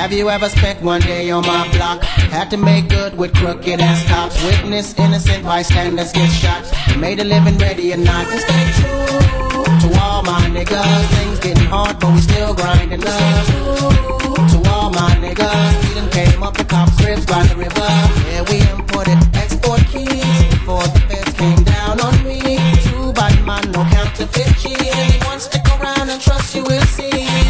Have you ever spent one day on my block? Had to make good with crooked ass cops. Witness innocent bystanders get shot. Made a living ready or not. And stay true to all my niggas. Things getting hard, but we still grinding up. To all my niggas, we done came up the cops' cribs by the river. Yeah, we imported export keys before the feds came down on me. Too by man, no counterfeit cheese. Anyone stick around and trust you will see.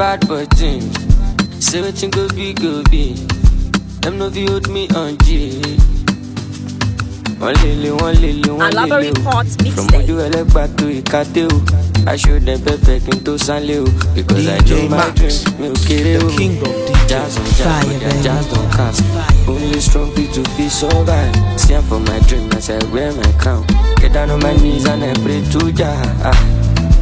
bad button. Say wetin go be go be. Dem no fit hold me on G. one lelee one lelee one lelee o. Oh. From ojú ẹlẹ́gbà tó ìkàtẹ́ o. Aṣọ dẹ̀ pẹ́pẹ́ kí n tó san o. Because I do my dream mi ò kéré o. Jazz on jazz on jazz jazz cast. Only strong people fit survive. See am for my dream as I wear my crown. Get down on my knees and I pray to Jah. Ah.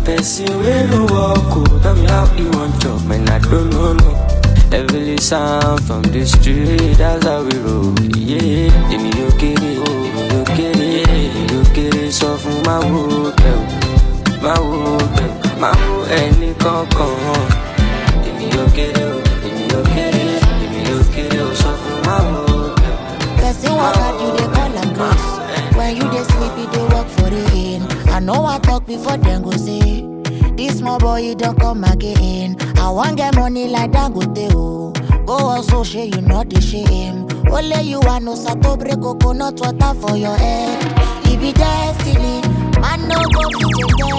Person wey no walk me how you wan chop man, I don know no sound from the street, that's how we roll, yeah kere yóò kéré, èmi yóò kéré, èmi kere Sọ fún máa wo o, máa wo bẹ́ẹ̀ o, ma wo ẹni kankan Èmi kere oh, oh, o, emi yóò kere emi yóò kere o Sọ fun o, wo o When you dey sleep, you dey work for the end. I know I talk before them go say, This small boy, he don't come again. I want get money like Dangote, oh. Go also share, you know the shame. Only you want no sato break coconut water for your head. It e be destiny, man no go fit your destiny.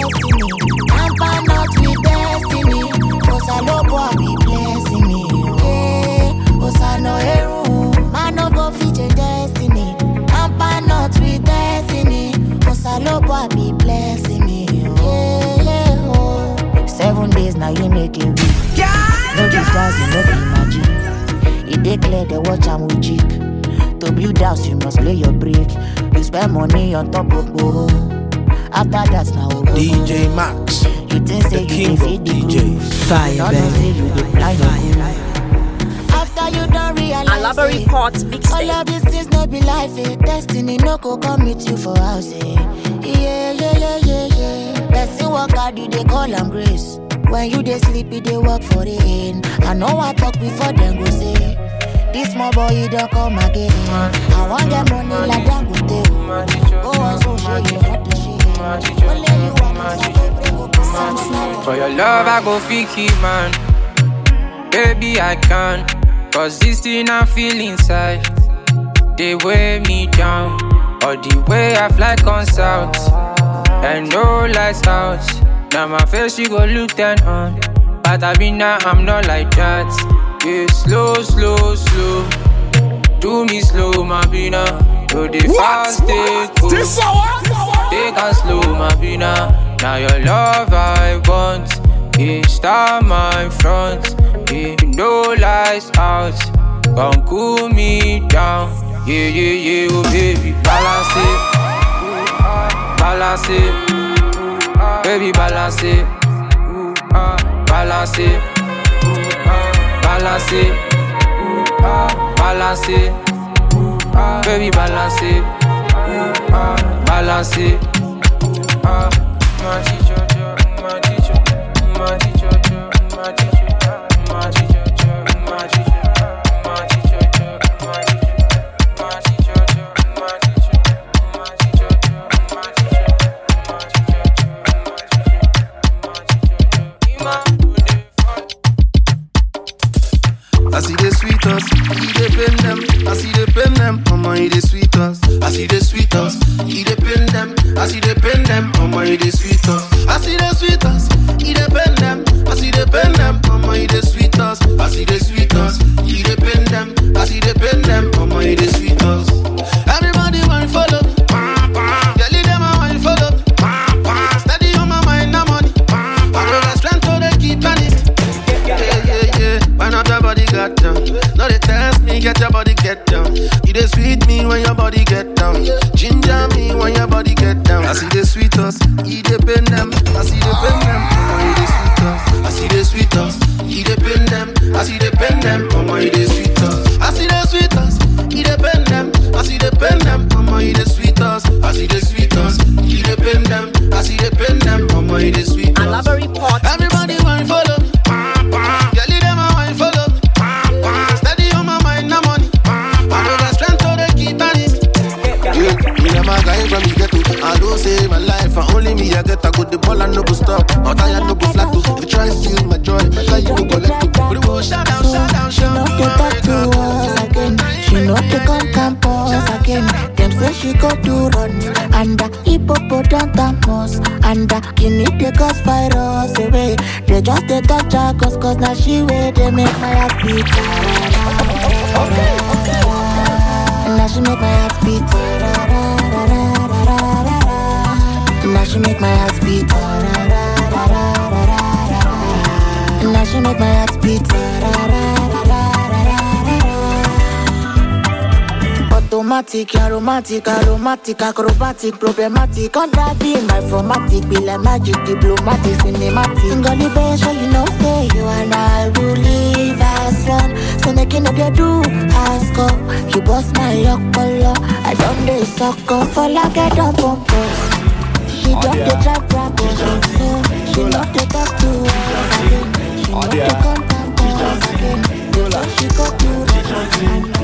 Tamper not with destiny. Cause I love what be blessing me. Oh. Yeah, cause I know everyone. making way. No be stars, no be magic. It dey clear, they watch I'm with cheek. To build house, you must lay your brick. You spend money on top of boro. After that, now DJ Max, you think say the king of DJ. Fire, baby. you after you don't realize it report mixtape. All of these things no be life, eh? Destiny no go come meet you for house, eh? Yeah, yeah, yeah, yeah, yeah. Person work hard, you they call them grace. When you dey sleepy, they work for the end. I know I talk before them go say. This small boy, he don't come again. I want get money like them go tell. Go so sure you not the shit. Only you want to For your love, I go fiki, man. Baby, I can. Cause this thing I feel inside. They weigh me down. or the way I fly comes out. And no lights out. Now my face you go look turn on But I be now I'm not like that Yeah, slow, slow, slow Do me slow, my bina Yo, dey fast, dey cool Take a slow, my bina Now your love I want Each time my front yeah, No lights out Come cool me down Yeah, yeah, yeah, oh baby Balance it Balance it Baby, balancez, balancez, balancez, baby, Kidney they cause virus away. Eh, they just they touch her cause cause now she way they make my heart beat. Okay, okay. Now she make my heart beat. Now she make my heart beat. Now she make my heart beat. Dramatic, aromatic, aromatic, acrobatic, problematic. On that being my formatic, be like magic, diplomatic, cinematic. Got the best, you know, say you and I will live as one. So making up your do, ask up. You bust my lock, color. I don't suck up. for like I don't pump she oh, don't yeah. get trapped rap or She not to talk to us again. She not oh, to contact us again. She got to us again.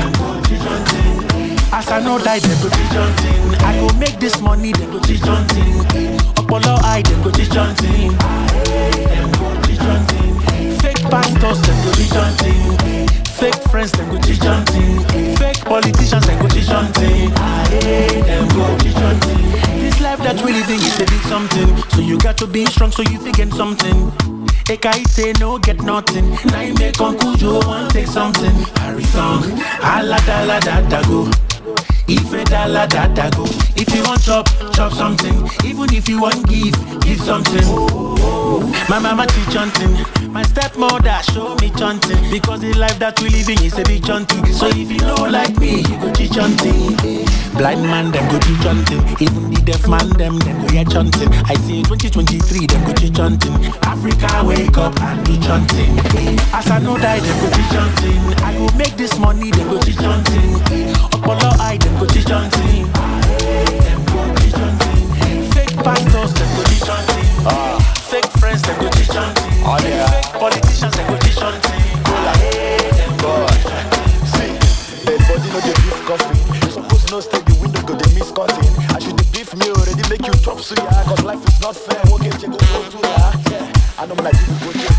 dem go teach thing. as i no die dem go teach thing. i go make dis money dem go teach thing. ọpọlọ eye dem go teach thing. dem go teach thing. fake pastors dem go teach thing. fake friends dem go teach thing. fake politicians dem go teach thing. dem go teach thing. this life that we living is a big something so you got to be strong so you fit gain something. say no get nothing. Now you make Uncle Joe want take something. Harry song, alada da go. ife dala data go if you wan chop chop something even if you wan give give something my mama teach chanting my stepmother show me chanting because the life that we living is a big chanting so if you no like me you go teach chanting blind man dem go teach chanting even the deaf man dem dem go hear chanting i say 2023 dem go teach africa wake up and do chanting as i no die dem go teach chanting i go make this money dem go teach i. lie, them go teach on team. Them go teach on team. Fake pastors, them go teach on team. Fake friends, them go teach on team. Oh, Fake politicians, them go teach on team. Go like, them go teach on team. See, dead body no dey beef coffee. you Suppose no stay the window go dey miss cutting. I should dey beef me already make you drop suya. Cause life is not fair, won't check you go to ya. Yeah. I like you people go check.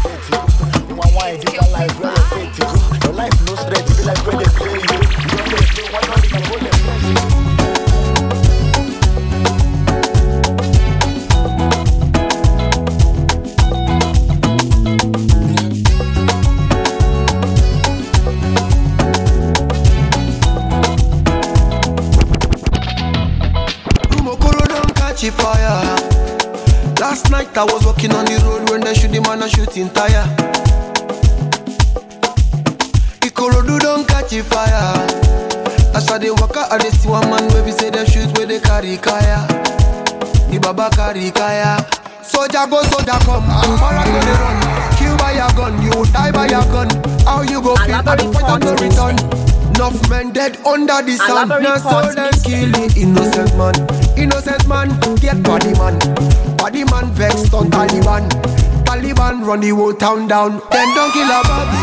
ti tire Ikorodu don catch fire. As I dey waka, I dey see one man wey be say dem shoot wey dey carry kaya. The baba carry kaya. Soja go, soja come. Mara go dey run. Kill by your gun, you die by your gun. How you go feel at the point of no return? Enough men dead under the sun. Now so dem kill the innocent man. Innocent man get body man. Body man vex on Taliban. Taliban run the whole town down. Them don't kill a Bobby.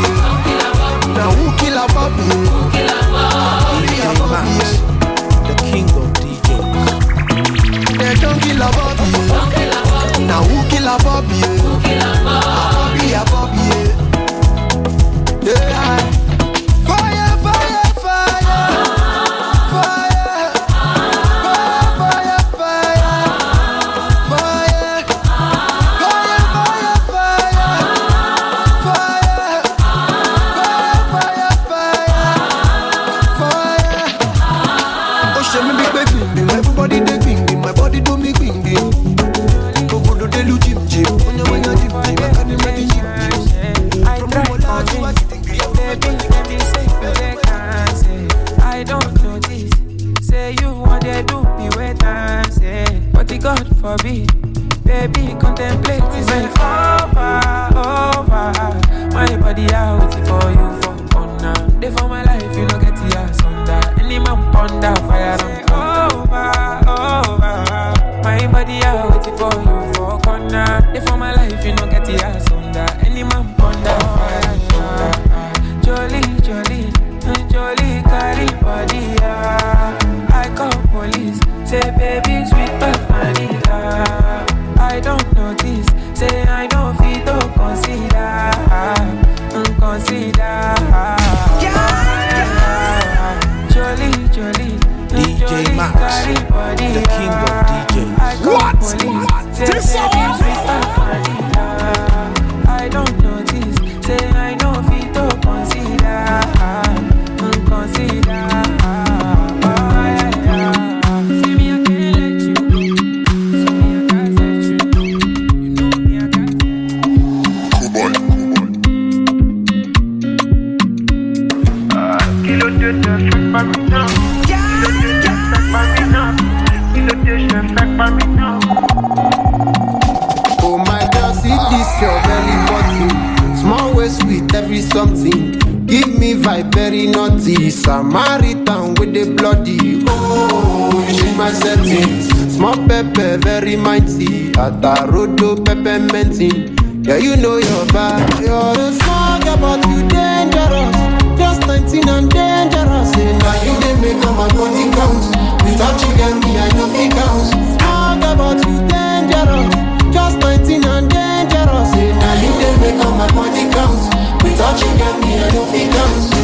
Now who kill a Bobby? Who kill a Bobby? The king of DJs. They don't kill a Bobby. Now who kill a Bobby? Who kill a Bobby? Samaritan with the bloody. Oh, change my settings. Small pepper, very mighty. Atarodo, pepper minty, Yeah, you know your bad. You're a small girl, but you dangerous. Just 19 and dangerous. And now you they make up my money counts. Without you, get me, I know fit counts. Small girl, but you dangerous. Just 19 and dangerous. And now you they make up my money counts. Without you, get me, I know fit counts.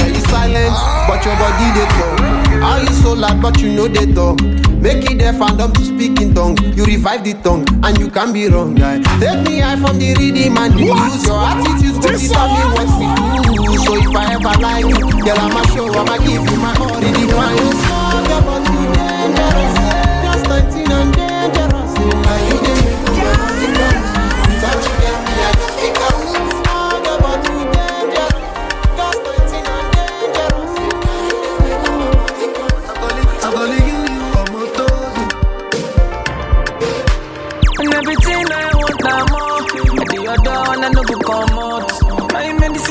silence but your body dey talk how you so loud but you no dey talk make e dey fandom to speak in tongue you revive the tongue and you can be wrong guy take me high from the rhythm and the use your attitude go determine what we do so if i ever lie you girl i'ma show i'ma give you my all the dangerous just 19 and dangerous.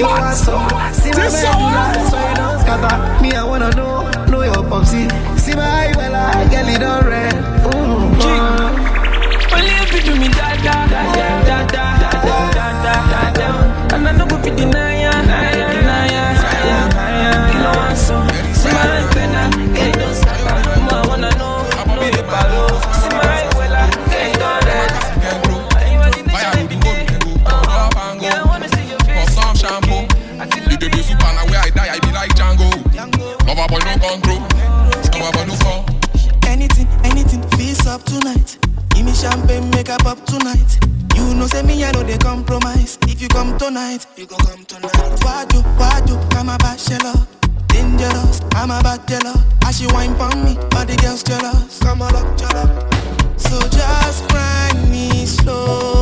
you want See my baby, Me, I wanna know, know your popsy. See my eye, well, I get it red. Only if you do me da da da da da da da da da da da. a pop tonight. You know, say me, I know they compromise. If you come tonight, you go come tonight. Wadu, wadu, I'm a bachelor. Dangerous, I'm a bachelor. As she wine pon me, all the girls jealous. Come on up, up. So just grind me slow.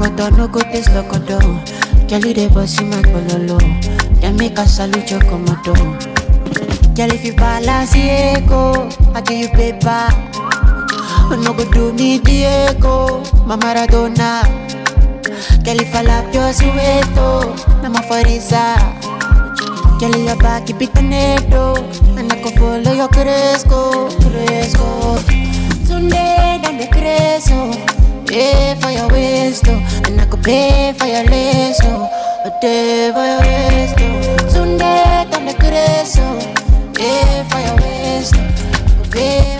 Lokoto, no go taste lokoto. Kelly dey bossy my bololo. make a salute your komodo. Girl, if you ego, I give you paper. No go do me Diego, my Maradona. Girl, if na ma Girl, back keep it and I go follow your pay for your waste, And I could pay for your lace, A day for your waste, Sunday, oh. Pay I could pay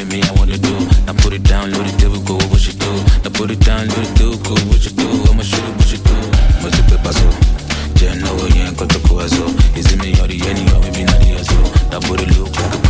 at me, I wanna do. Now put it down, load it, go what you do. Now put it down, load it, difficult, what you do. I'ma shoot it, what you do. Multiple paso. Yeah, no, yeah, Is it me or the any or e maybe not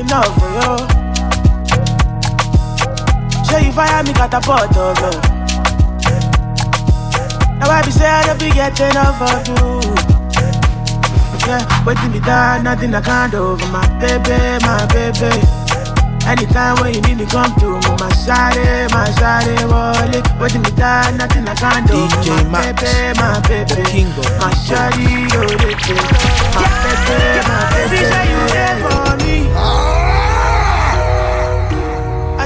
enough for oh, you. Show you fire me catapult, oh God. Now I be say I don't be get enough of you. Yeah, waiting me down, nothing I can't do my baby, my baby. Anytime when you need me, come to me, my shawty, my shawty, wallet. Waiting me down, nothing I can't do for my Max, baby, my baby. king of my shawty, oh, my baby, my baby.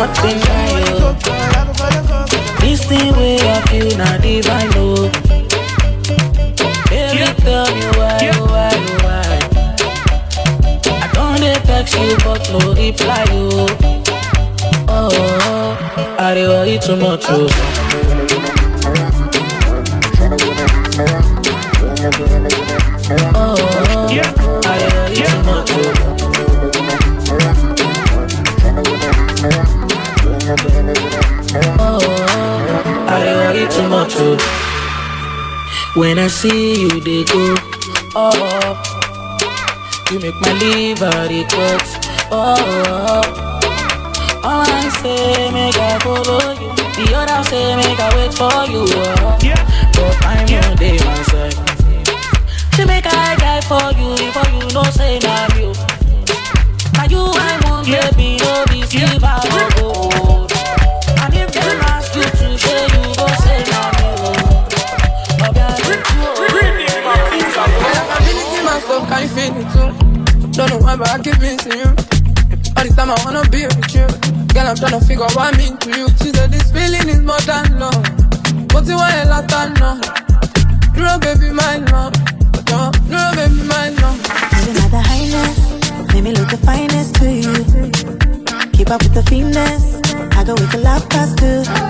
nothing like This thing way I feel not divine, Baby, yeah. tell me why, yeah. why, why I don't dey text you, but no reply, oh Oh, oh, I dey worry too much, oh Oh too much, oh. When I see you, they go up. You make my liver they cut up. All I say, make I follow you. The other say, make I wait for you. Oh. But I'm yeah. on day myself. She make I die for you, for you, no say, now oh. you. Now you, I want, yeah. baby, no be yeah. feeling too. Don't know why, but I keep missing you. All this time I wanna be with you. Girl, I'm trying to figure out what I mean to you. She said this feeling is more than love. But you want a lot of love. No, baby, my love. No, no, baby, my love. You're another highness. Make me look the finest to you. Keep up with the fineness. I go with the love past too.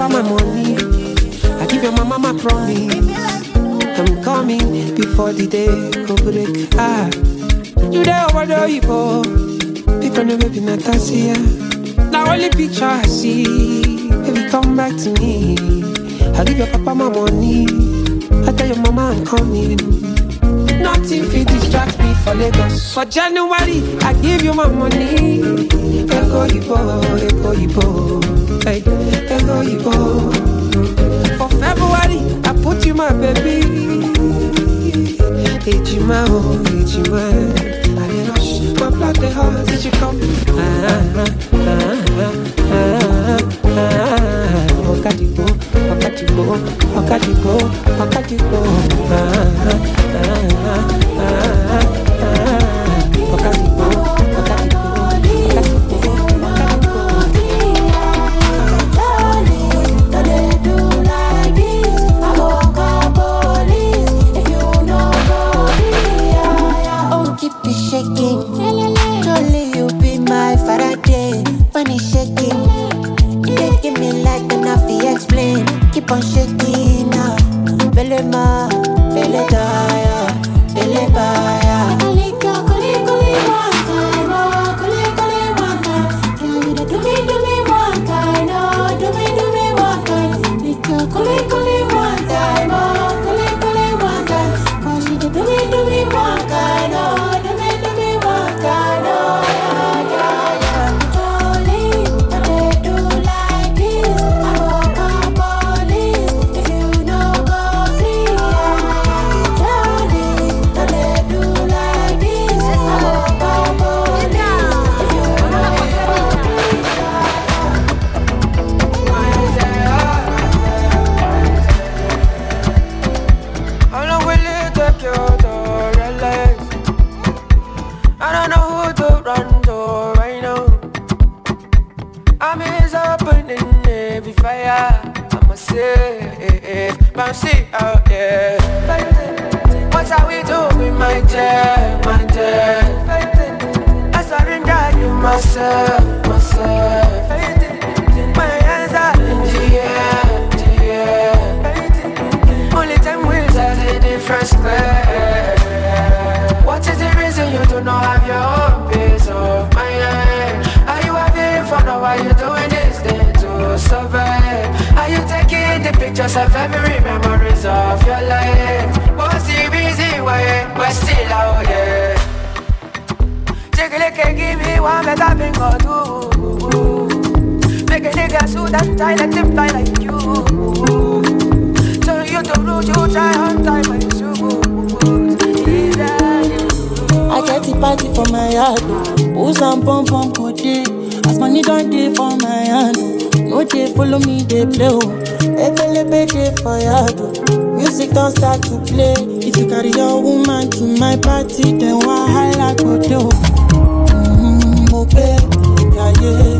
papa my money. I give your mama my promise. I'm coming before the day go break. Ah, you there over the people People know baby Natasia. Now only picture I see. Baby, come back to me. I give your papa my money. I tell your mama I'm coming. Nothing fit distract me for Lagos. For January, I give you my money. Ego, you boy, ego, you Hey. no For February, I put you my baby. Ejima, oh, Ejima. I rush, my blood, did you come? Ah, ah, ah. that die, let them fly like you. Turn you to root, you try on time my shoes. I get the party for my yard. Oh. Booze and pom pom good day. As money don't day for my hand. Oh. No day follow me, they play. Oh. Ebelebe day for yard. Music don't start to play. If you carry your woman to my party, then why I like do? Mm-hmm, okay, yeah, yeah.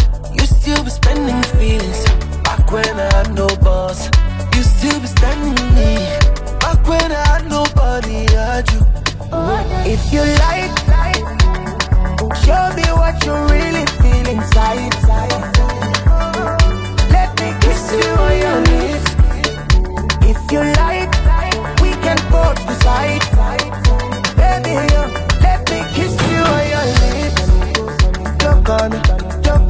still be spending feelings back when I had no boss. You still be standing me back when I had nobody had you. If you like, show me what you really feel inside. Let me kiss you on your lips. If you like, we can both decide. Baby, let me kiss you on your lips. Look on me.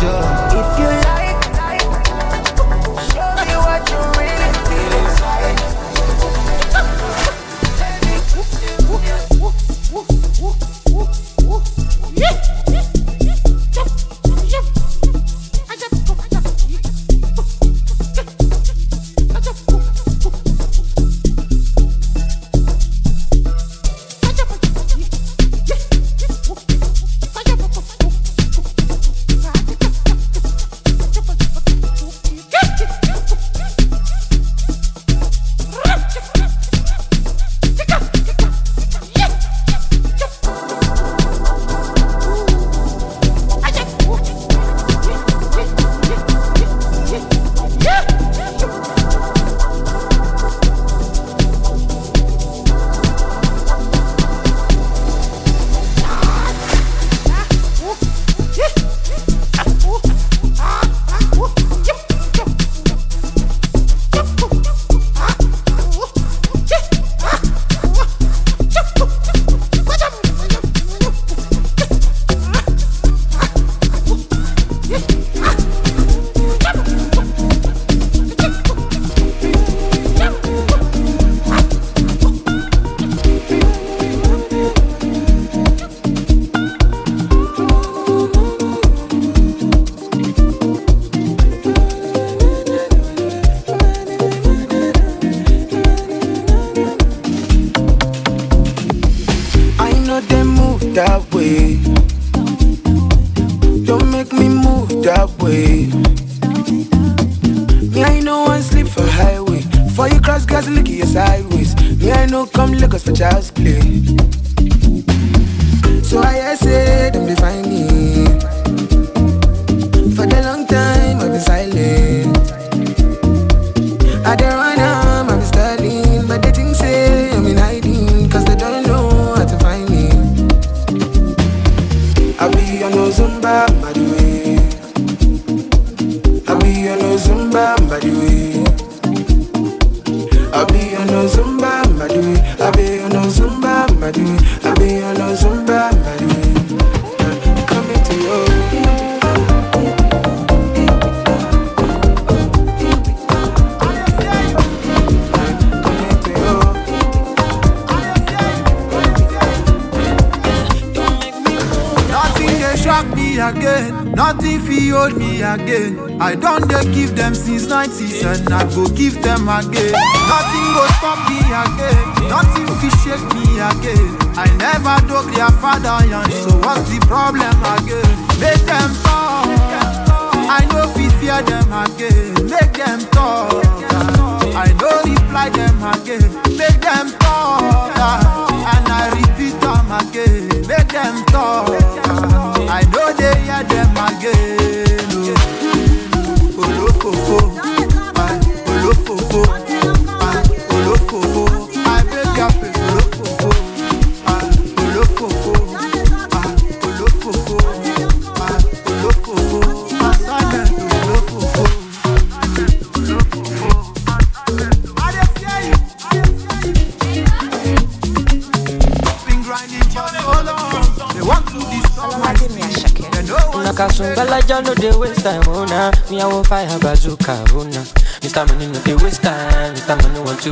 danger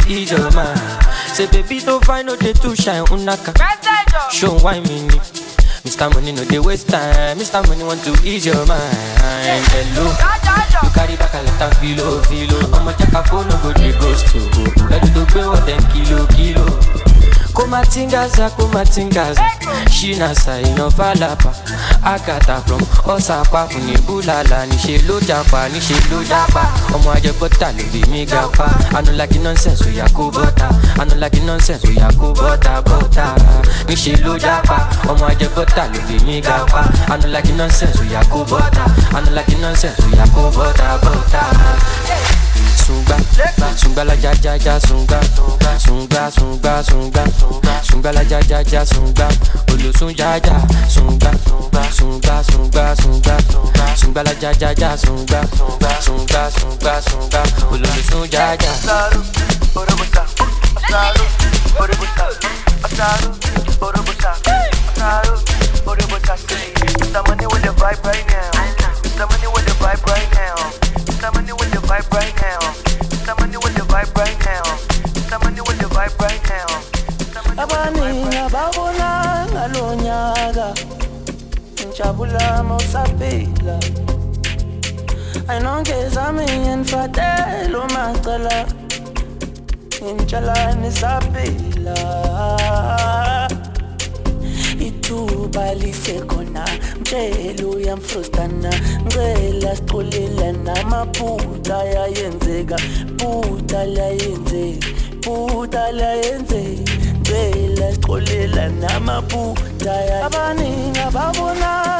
to ease your mind. Say, baby, don't find no day to shine. Unaka. Show why me. Mr. Money, no, they waste time. Mr. Money, want to ease your mind. Hello. You carry back a lot filo, filo. I'm a jack, I phone, no go, they ghost. Ready to pay what them kilo, kilo. kumatingaza kumatingaza shina saina falapa akata from ọsàpá fún ní búlàlà níṣẹ́ ló japa ọmọ ajẹgbọta ló bí mi gapa anulaki nonsense oya bọta anulaki nonsense oya kó bọta bọta níṣẹ́ ọmọ ajẹgbọta ló bí mi gapa anulaki nonsense oya anulaki nonsense oya kó Hey. sungba sungba la ja ja ja sungba sungba sungba la ja ja ja sungba olùsùn ja ja sungba sungba la ja ja ja sungba sungba sungba sungba olùsùn ja ja. asaru with the abaningi ababonanga lo nyaka ngijabulama usaphila ayinonke zami ngenifatela umacala ngimtshalani saphila ithuba lisekhona mtshela uyamfrustana ngicela siculelana amaphutha yayenzeka phutha layenzeka amaphutha la yenzeni Bela sixolela namaphutha Abaningi ababona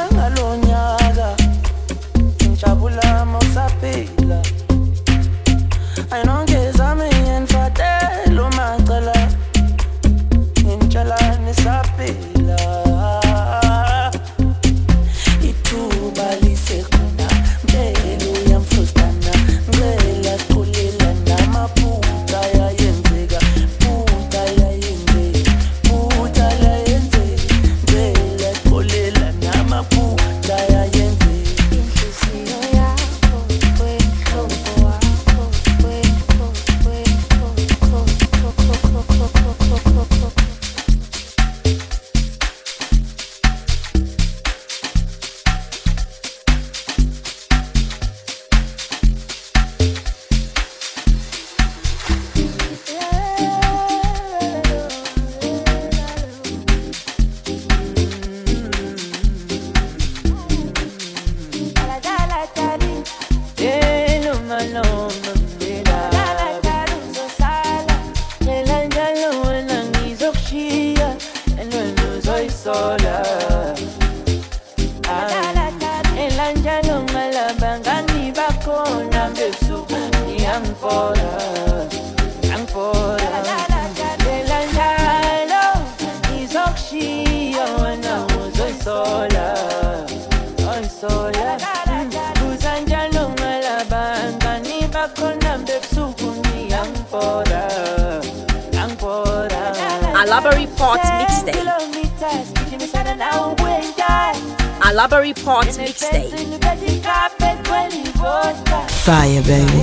Fire, baby.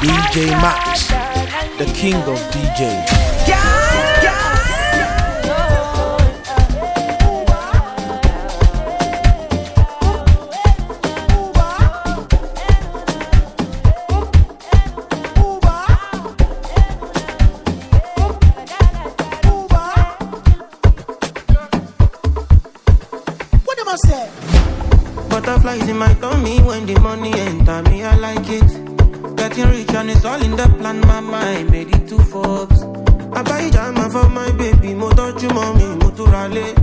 DJ Max, king of DJs. It's in my tummy when the money enter me, I like it. Getting rich and it's all in the plan, mama, I made it to Forbes. I buy jama for my baby, mo touch mommy, mo turale.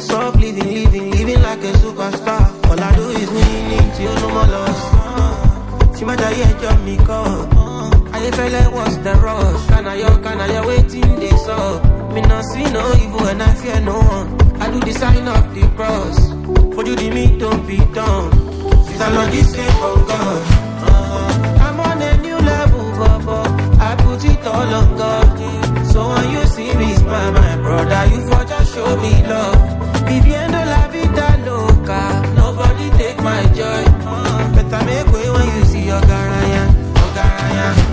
Soft living, living, living like a superstar. All I do is win it, you know my loss. See my diet, you me call. I feel like what's the rush? Can I, can I, waiting this up? Me not see no evil and I fear no one. I do the sign of the cross. For you, me, don't be done, Since I'm not this same, oh God. I'm on a new level, Baba. I put it all on God. So when you see me smile, my brother, you for just show me love. Viviendo la vida loca. Nobody take my joy. Uh, better make way when you see your garaya, your garaya.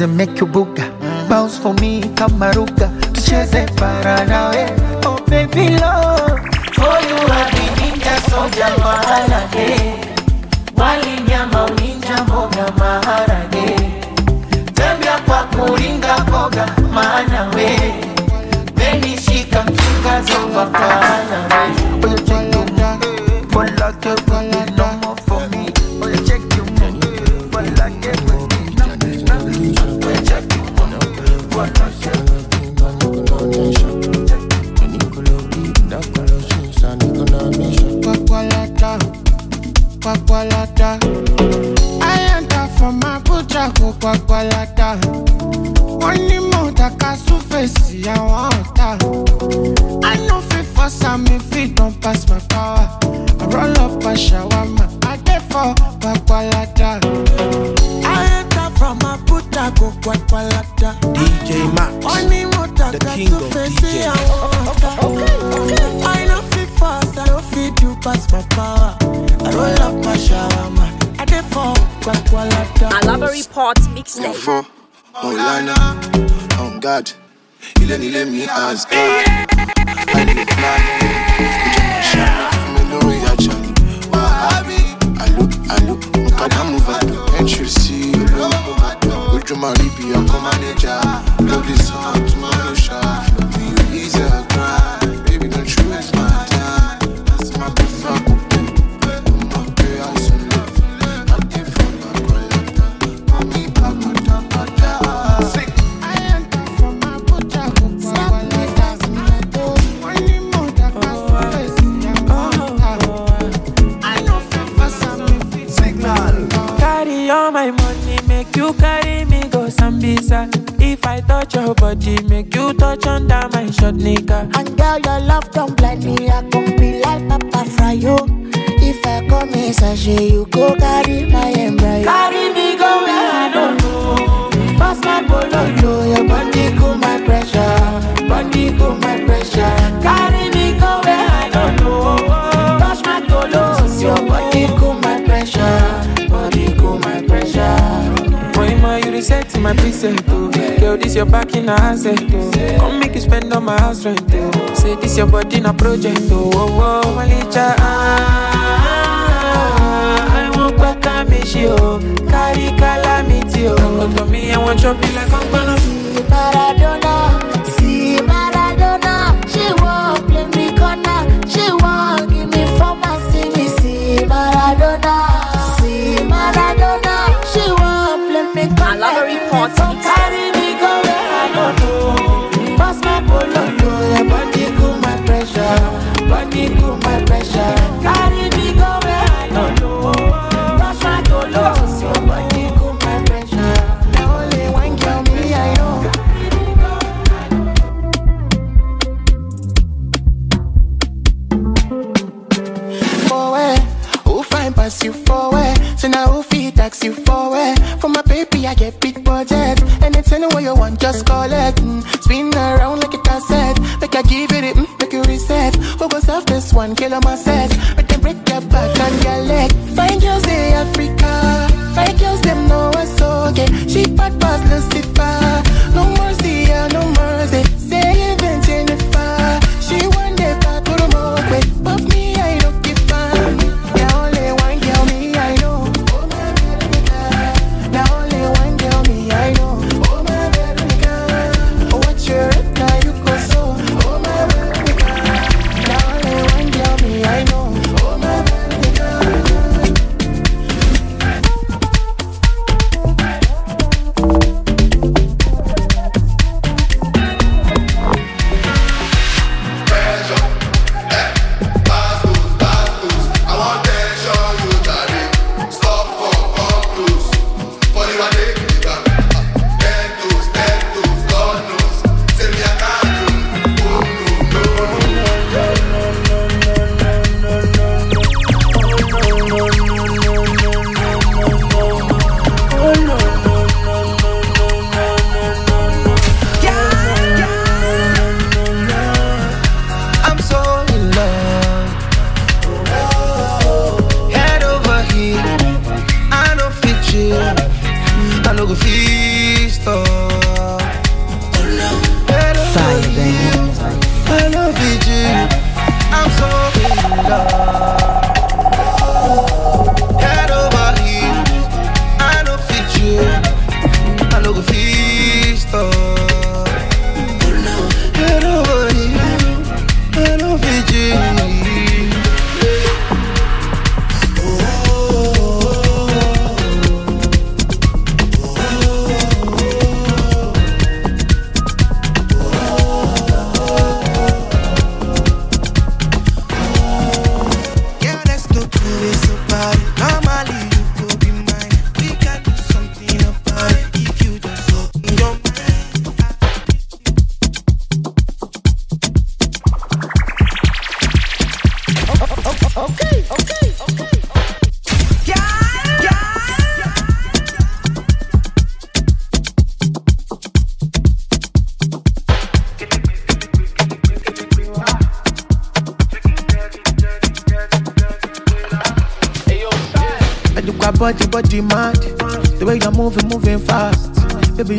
nisikilize make you buga bounce for me kama ruga tucheze para nawe oh baby love for you habi ninja soja maharage wali nyama uninja mboga maharage tembea kwa kuringa boga maana we benishika mchunga zova pana we my money make you carry me go Sambisa. If I touch your body, make you touch under my short nigga. And girl, your love don't blind me. I come be like Papa Fryo. If I come inside you go carry my embryo. Carry me go where I don't know. Pass my bololo, your body go my pressure. Body go my pressure. Carry me go where I don't know. Touch my tolos, your body go my pressure. set my preset, oh. Girl, this your back in asset, oh. Come make you spend on my house rent, oh. Say this your body in a project, oh. Oh, oh, Malicha, ah. I won't back and miss you, me calamity, oh. Come to me, I want your be like I'm gonna see Maradona, see Maradona. She won't play me corner, she won't give me for my see me, see Maradona. I no know. Carry budget. Anything what you want, just call it. Mm. Spin around like a cassette. Make I give it, it mm, make you reset. Who goes off this one? Kill on myself. Make them break your back and your leg. Find girls in Africa. Find girls, them know what's okay. She bad, boss, Lucifer.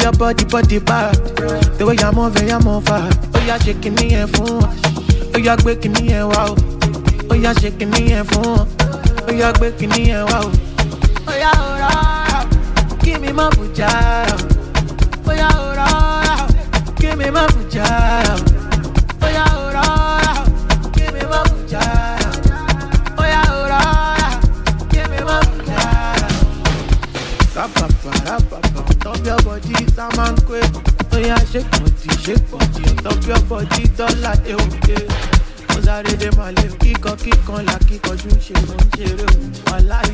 your body, body bad. The way you're moving, you're moving. Oh, you're shaking me and phone. Oh, you're breaking me and wow. Oh, you're shaking me and phone. Oh, you're breaking me and wow. Oh, yeah, oh, yeah. Give me my Oh, yeah, oh, yeah. Give me my shake body shake body ọ̀tọ̀ pure body dọ́là dé kíkọ kíkan là ṣe mo ṣeré òun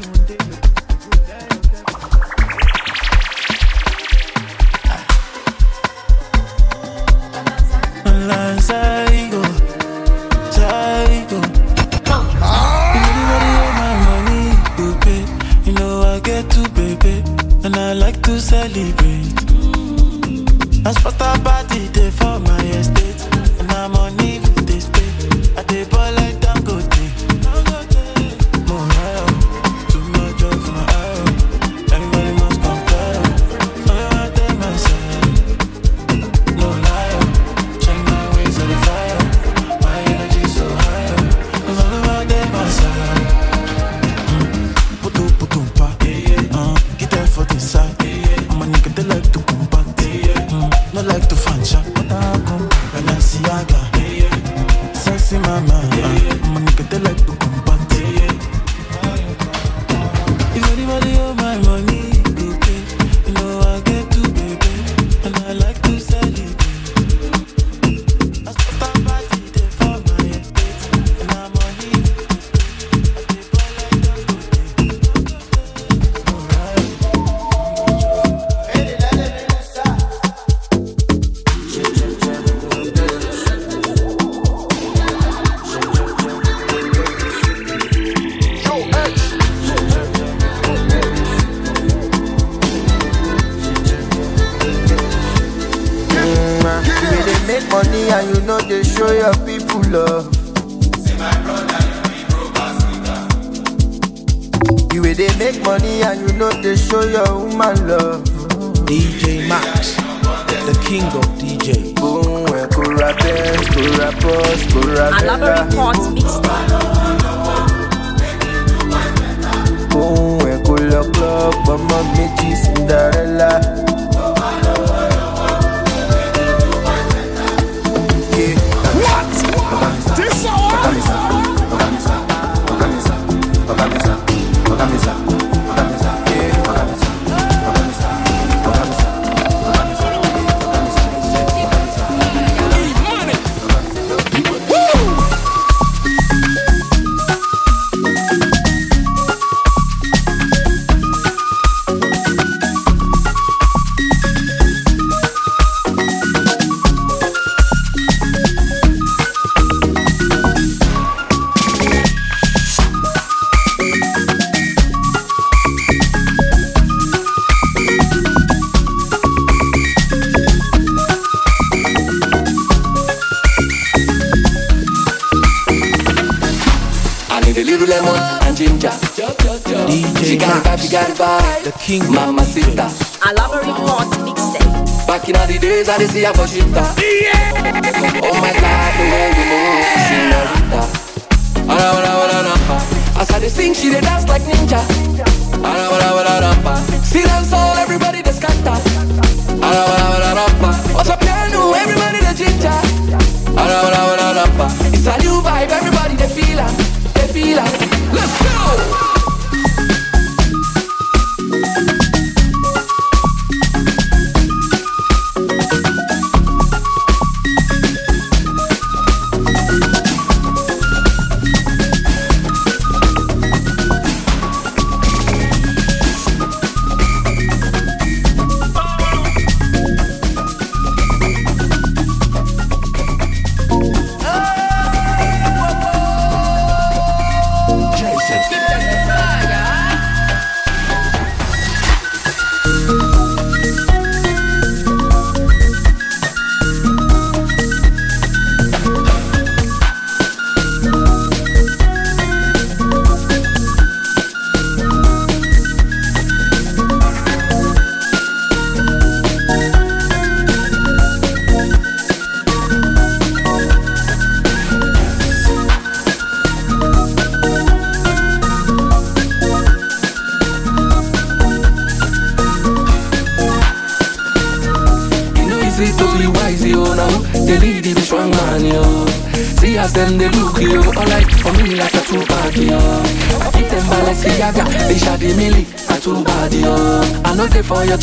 si a Washington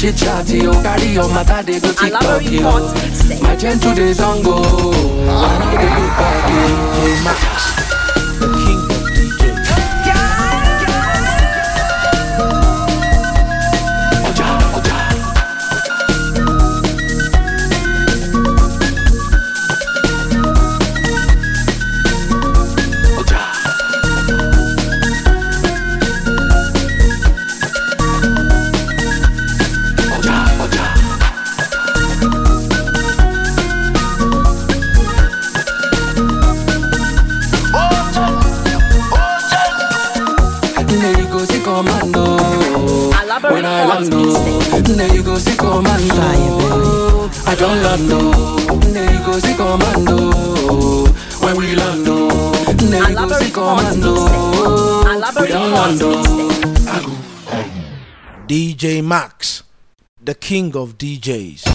chit chatty, oh carry your matter, they go TikTok you. My gentle days on go, ah. I know they look back, DJ Max, the king of DJs.